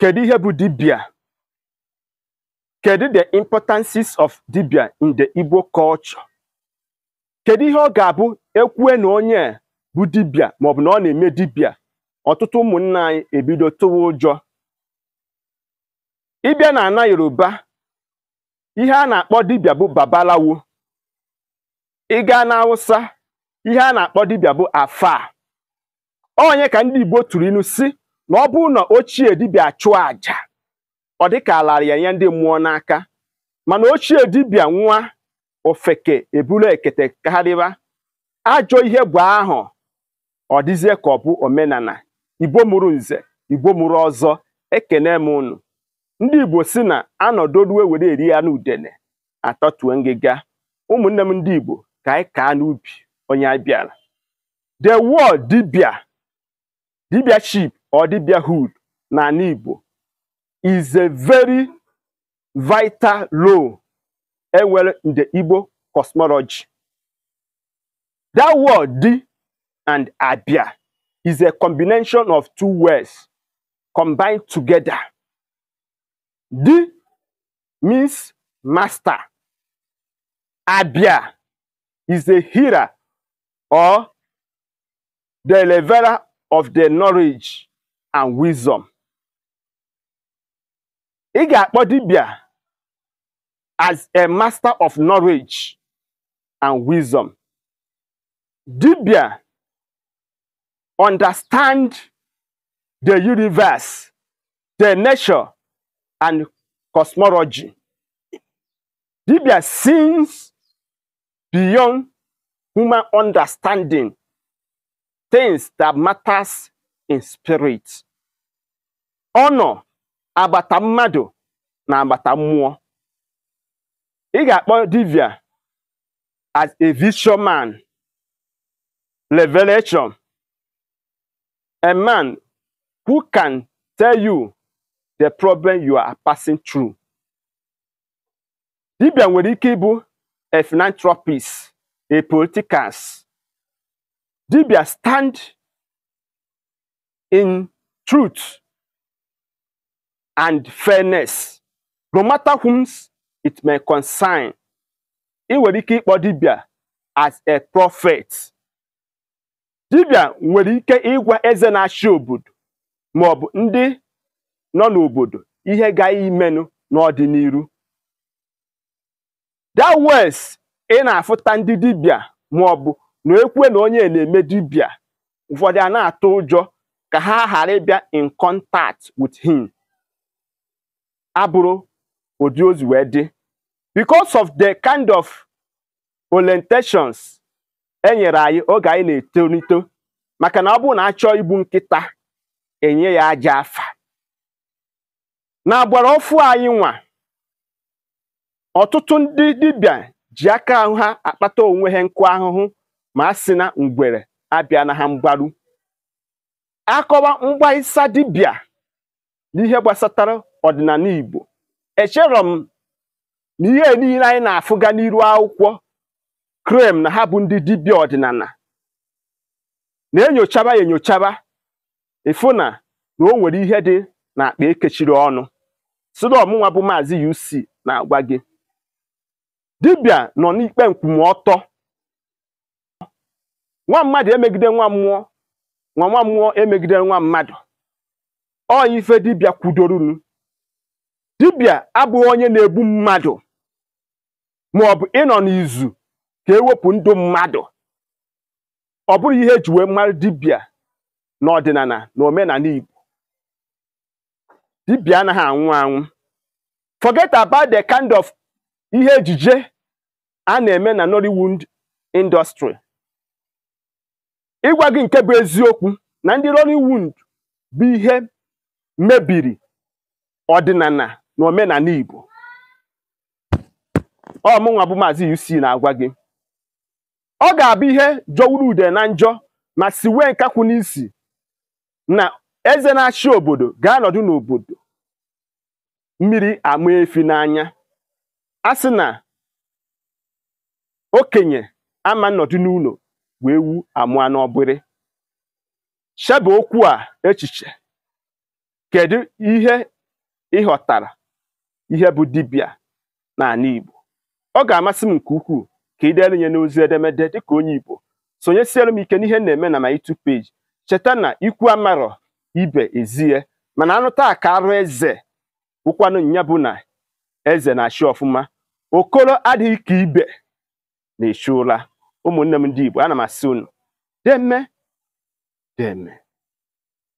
Kedu ihe bụ dibịa? Kedu the importances of dibịa in the Igbo culture? Kedu ihe ọ ga-abụ ekwue na onye bụ dibịa maọbụ na ọ na-eme dibịa ọtụtụ ụmụnna anyị ebido tụwa ụjọ ịbịa na ana Yoruba ihe a na-akpọ dibịa bụ babalawo ịga na Hausa ihe a na-akpọ dibịa bụ afa onye ka ndị Igbo tụrụ si na ọ bụrụ na ochie dibịa chụọ àjà ọ dịka ala ya nye ndị mmụọ n'aka mana ochie dibịa nwa ofeke ebulu ekete karịba ajọ ihe bụ ahụ ọ dịzie ka ọ bụ omenala igbo mụrụ nze igbo mụrụ ọzọ ekene m unu ndị igbo si na anọdoruwe were eri ya n'udene atọtue ngịga ụmụnne m ndị igbo ka anyị kaa n'ubi onye abịara the world dibịa dibia chip or hood n'ala Igbo is a very vital role enwere in the Igbo cosmology. That word di and abia is a combination of two words combined together. Di means master. Abia is a healer or the leveler of the knowledge and wisdom i dibia as a master of knowledge and wisdom dibia understand the universe the nature and cosmology dibia sees beyond human understanding things that matters in spirit ọ agbata mmadụ na agbata mmụọ ị ga-akpọ dibia as a vision man revelation a man who can tell you the problem you are passing through. dibia nwere ike ịbụ a philanthropist a politicans dibia stand in truth and fairness no matter whom it may concern ị nwere ike ịkpọ dibia as a prophet dibia nwere ike ịgwa eze na-achị obodo ma ọ bụ ndị nọ n'obodo ihe ga-imenụ n'ọdịnihu that was ị na-afụta ndị dibia ma ọ bụ na ekwe na onye na-eme dibia ụfọdụ a na-atụ ụjọ ka ha ghara ịbịa in contact with him abụrụ ụdị ozi wee dị because of the kind of orientations e nyere anyị oge anyị na-etolito maka na ọ bụrụ na achọọ igbu nkịta enye ya aja afa n'agbara agbara anyị nwa ọtụtụ ndị dibia ji aka ahụ ha akpata onwe ha nkụ ahụhụ ma a si na ngwere abịa na ha mgbaru akọwa mgbaisa dibịa n'ihe gbasatara ọdịnala Igbo echere m na ihe niile anyị na-afụga n'iru akwụkwọ krem na ha bụ ndị dibịa ọdịnala na-enyochaba ya enyochaba ịfụ na na o nwere ihe dị na akpa ekechiri ọnụ sịrị ọmụnwa bụ maazị UC na-agwa gị dibịa nọ n'ikpe nkwụmọtọ nwa mmadụ emegide nwa mmụọ nwa nwa mmụọ emegide nwa mmadụ ọ ife dibịa kwudorunu dibia abụghị onye na-egbu mmadụ maọbụ ịnọ n'izu ka ewepụ ndụ mmadụ ọ bụrụ ihe eji wee mara dibịa n'ọdịnala na omenala Igbo dibia anaghị anwụ anwụ forget about the kind of ihe ejije a na-eme na Nollywood industry ịgwa gị nke bụ eziokwu na ndị Nollywood bụ ihe mebiri ọdịnala n'omenala Igbo ọ nwa bụ Maazị UC na-agwa gị ọ ga-abụ ihe jọwuru ude na njọ ma si wee nkakwu n'isi na eze na-achị obodo ga-anọdụ n'obodo mmiri ama efi n'anya asị sị na okenye ama nnọdụ n'ụlọ wee wu amụa n'ọbịrị chebe okwu a echiche kedu ihe ị ihe bụ dibịa n'ala Igbo ọ ga-amasị m nke ukwuu ka ị elu nye n'ozi edemede dịka onye Igbo sonyesiere m ike n'ihe na-eme na ma YouTube page cheta na ikwu amarọ ibe ezie mana anụ taa arụ eze wụkwanụ nya bụ na eze na-achị ọfụma okoro adịghị ka ibe na-echu ụra ụmụnne m ndị Igbo ana m asị unu deme deme